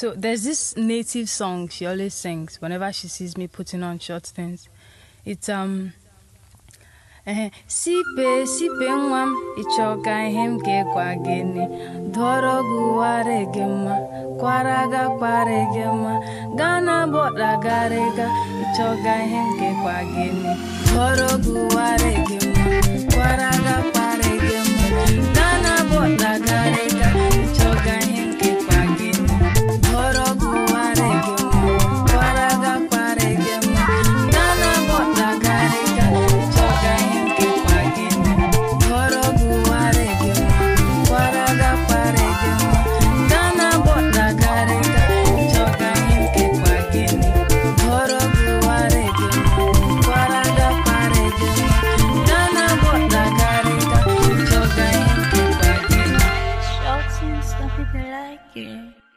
So there's this native song she always sings whenever she sees me putting on short things. It's um sipe sipe nwa m ịchọ ihe m ga-ekwa ni? dọrọ gị ụwarị gị mma kwara ga kwarị gị mma gaa na bọda garịga ịchọ ka ihe m ga-ekwa ni? dọrọ gị Don't people like